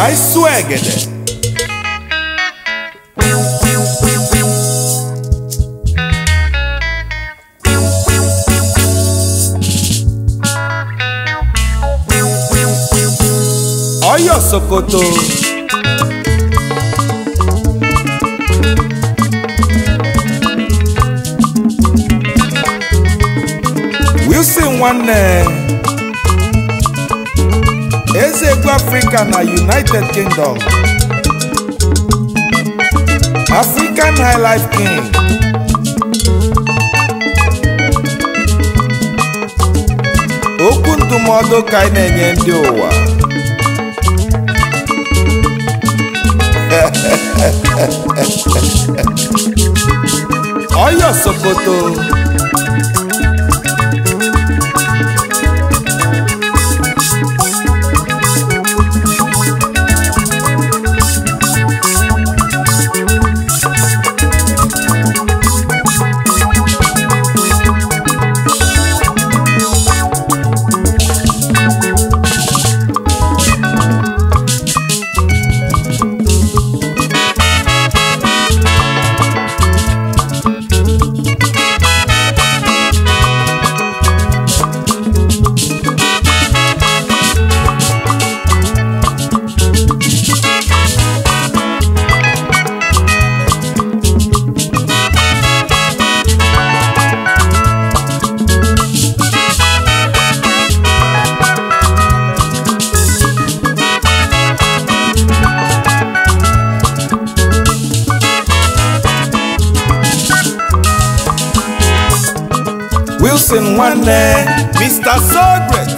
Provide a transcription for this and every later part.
Cai Suegede. Ọ̀yọ́ Sokoto. Wilson nwanne. South Africa na United Kingdom African Highlife King okwu ndụmọdụ ka anyị na-enye ndị ụwa Oyo Sokoto Blessing nwanne Mr. Sogret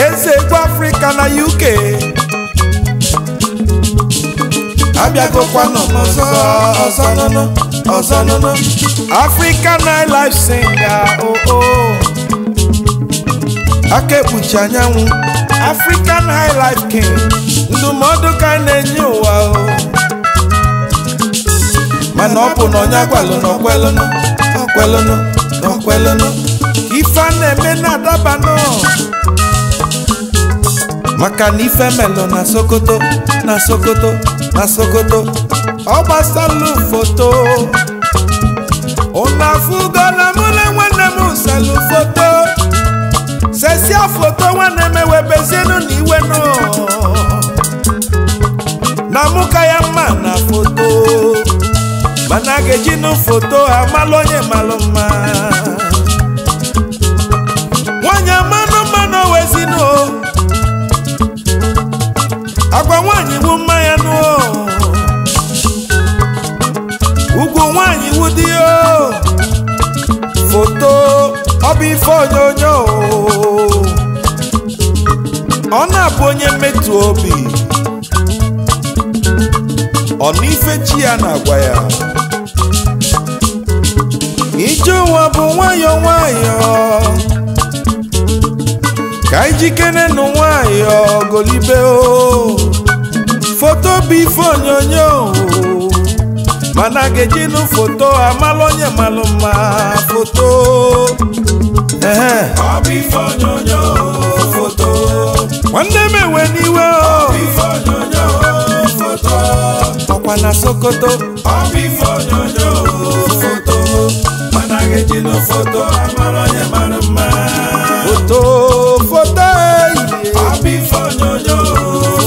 eze egwu Afrịka na UK abịagokwanụ ọzọ ọzọ nụnụ ọzọ nụnụ African nightlife singer oo oh, oh. aka ekpuchi anyanwụ African nightlife king ndụmọdụ ka na-enye ụwa o oh. mana ọ bụ na onye agwalụ na ọkwelụnụ ọkwelụnụ ọkwelụlụ ife na-eme na adabanụ maka na ife melụ na sokoto na sokoto na sokoto ọ gbasalụ foto ụnụ na mụ nwanne m selụ foto sesia foto nwanne m ewebezienụ na nọ na mụ ya mma ga-ejinu foto amalụ onye malụ mma nwanyị mmanụ mmanụ wezinu agwa nwanyị mma ya nụ ugwu nwanyị wu dị foto ọ bụ ife onyonyo ọ na-abụ onye mmetụ obi ọ na ife chi ya na-agwa ya ije ụwa bụ nwayọọ nwayọọ ka ijikere nụ nwayọọ golibe foto bifo ife onyonyo mana ga-ejinụ foto amalụ onye malụ mma foto ehe ọ onyonyo foto nwanne m n'iwe ọ bụ foto ọkwa na sokoto ọ bụ ife onyonyo ejina foto amara onye mara mma foto foto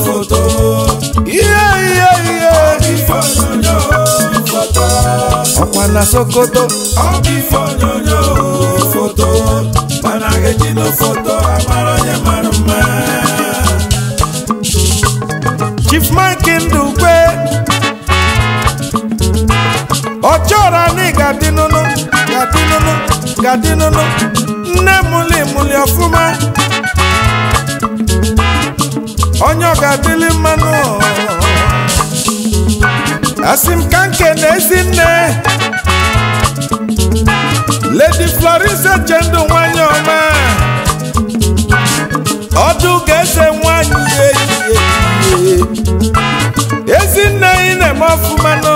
foto ihe ihe ihe foto ọkwa na sokoto abi ife foto foto amara mara mma chief mike ndukwe ọ chọrọ ga-adị nụnụ nne mụli mụli ọfụma onye ọ ga-adịli mmanụ asị m ka nke na ezi nne Lady Florence Echendo nwanyị ọma ọdụ ga-eze nwanyị ezinne ị na-eme ọfụma nọ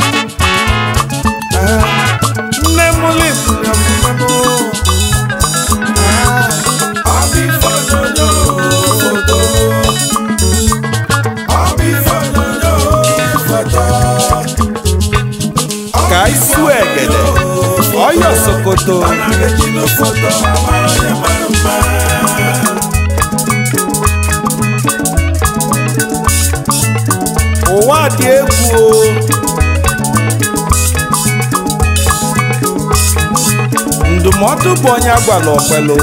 nne m lipụrụ ka isu egede ọyọ sokoto ụwa dị egwu o ma bụ tụpụ onye agwala ọkwelu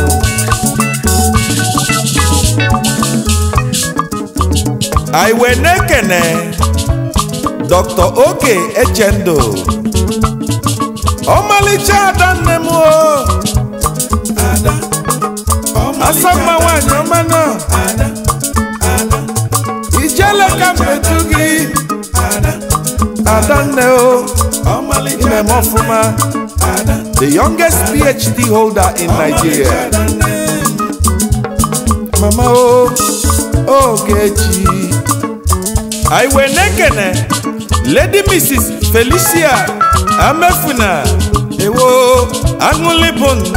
anyị wee na-ekene dr oke echendo ọmalịcha ada nne m asamma nwanyị ọma na ijele ka mmetu gị adanne o ime m ọfụma the youngest PhD holder in Nigeria. Mama o oh, Ogechi oh, Iwenekene eh? Lady Mrs. Felicia Amefuna Ewo aṅụlịbụ ndụ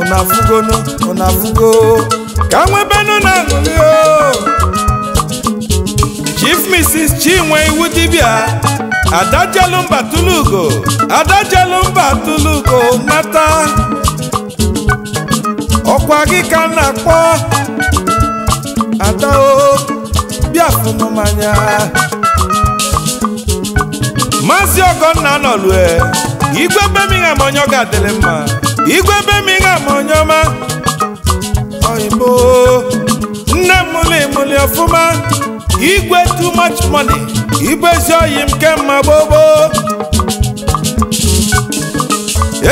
ụnafugonu ụnafugo ka nwebenu na aṅụlị o oh. Chief Mrs. Chinwe iwu dibia Ada mba Tulugo Ada mba Tulugo nata ọkwa gị ka na-akpọ adao bịa fụnụ mmanya Maazị Ọgọnna nọlue igwe bemigham onye ga-adịrị mma igwe bemigham onye ọma oyibo nne m mụlị mụlị ọfụma igwe too much money igwe oyi m kemma gbogbo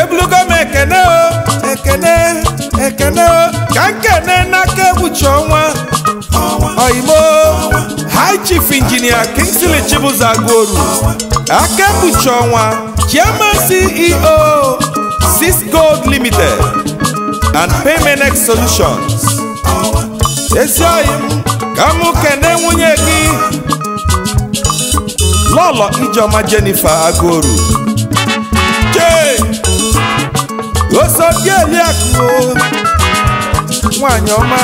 ebulugo ekele ekene o ekene o ka nkene ọnwa high chief engineer Kingsley Chibuzo Aguoru aka egbuchi ọnwa chairman CEO Gold Limited and Payment Solutions ezi ka mụ kene nwunye gị lọlọ ijeọma Jennifer Agoru chee osodieliakụ nwanyị ọma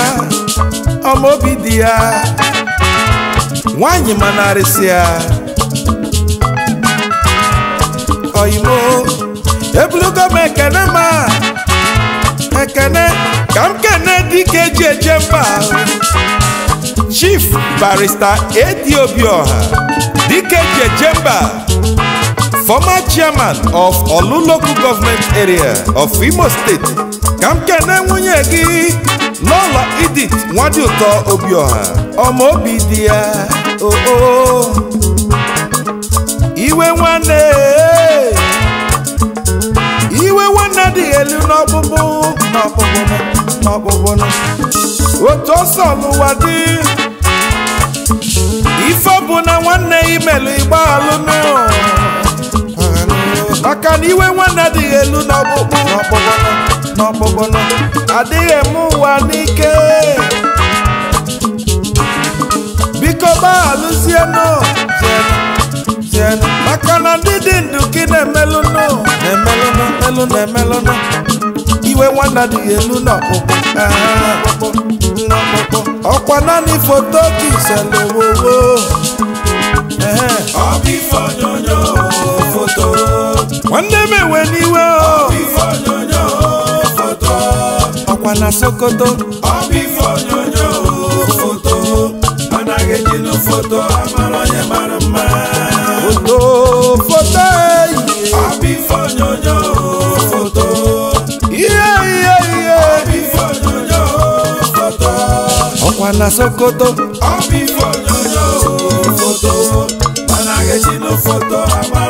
ọmaobi dị ya nwanyị ma ya oyimo ebulugo m ekene ma ekene ka m kene dike eji eje mba Chief Barrister Edi Obioha Dike Jejemba former chairman of Olu local government area of Imo State ka m kene nwunye gị n'ụlọ Edith Nwadịụtọ Obioha Ọmọ obi dị ya oo iwe nwanne iwe nwanne dị elu n'ọgbụgbụ n'ọkpụkpụ n'ọkpụkpụ otu ọsọ n'ụwa dị ife bụ na nwanne imelu igbaalụnụ maka na iwe nwanne adịghị elu n'ọkpụkpụ n'ọkpụkpụ adịghị eme ụwa n'ike biko gbaghalụzienụ maka na ndị dị ndụ ka na-emelụnụ na-emelụnụ na-emelụnụ iwe nwanna dị ọkwa naanị foto kiselowowo nwanne m ewe n'iwe ọkwa na sokoto foto amara mara mma foto na Sokoto. All be for yo yo photo, man I get no photo.